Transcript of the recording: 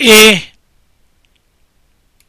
Et...